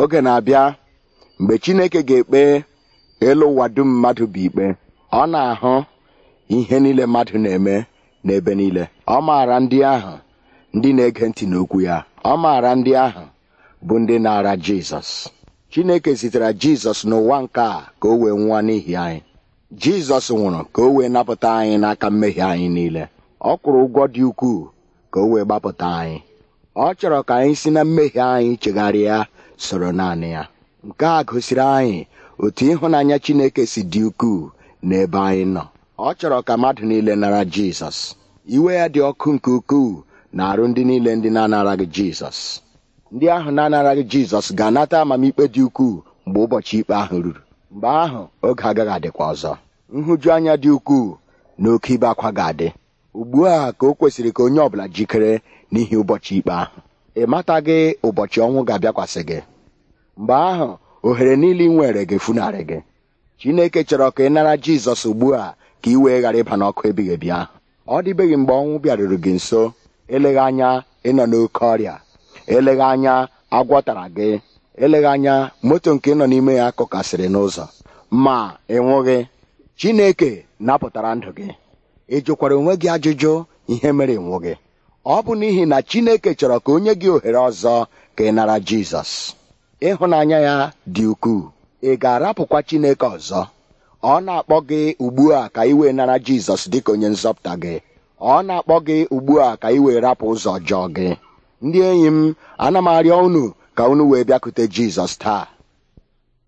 oge na-abịa mgbe chineke ga-ekpe elu ụwa dum mmadụ bụ ikpe ọ na-ahụ ihe niile mmadụ na-eme n'ebe niile ọ maara ndị ahụ ndị na-ege ntị n'okwu ya ọ maara ndị ahụ bụ ndị na-ara jizọs chineke zitere jizọs n'ụwa nke a ka o wee nwụọ n'ihi anyị jizọs nwụrụ ka o wee napụta anyị n'aka mmehie anyị niile ọ kwụrụ ụgwọ dị ukwuu ka o wee gbapụta anyị ọ chọrọ ka anyị si na mmehie anyị chegharịa soro naanị ya nke a gosiri anyị otu ịhụnanya chineke si dị ukwuu n'ebe anyị nọ ọ chọrọ ka mmadụ niile nara jizọs iwe ya dị ọkụ nke ukwuu na arụ ndị niile ndị na-anaraghị jizọs ndị ahụ na-anaraghị jizọs ga-anata amamikpe dị ukwuu mgbe ụbọchị ikpe ahụ ruru mgbe ahụ oge agaghị adịkwa ọzọ nhụju anya dị ukwuu na oke ibe akwa ga-adị ugbu a ka o kwesịrị ka onye ọ bụla jikere n'ihi ụbọchị ikpe ahụ ị mataghị ụbọchị ọnwụ ga-abịakwasị gị mgbe ahụ ohere niile ị nwere ga-efunarị gị chineke chọrọ ka ị nara jizọs ugbu a ka ị wee ghara ịba n'ọkụ ebighị ebi ahụ ọ dịbeghị mgbe ọnwụ bịaruru gị nso eleghị anya ịnọ n'oke ọrịa eleghị anya agwọtara gị eleghị anya moto nke nọ n'ime ya kụkasịrị n'ụzọ ma ị chineke napụtara ndụ gị ị jụkwara onwe gị ajụjụ ihe mere ị nwụghị ọ bụ n'ihi na Chineke chọrọ ka onye gị ohere ọzọ ka ị nara Jizọs ịhụnanya ya dị ukwuu ị ga-arapụkwa Chineke ọzọ ọ na-akpọ gị ugbu a ka ị wee nara Jizọs ka onye nzọpụta gị ọ na-akpọ gị ugbu a ka ị wee rapụ ụzọ ọjọọ gị ndị enyi m ana m arịọ unu ka unu wee bịakute Jizọs taa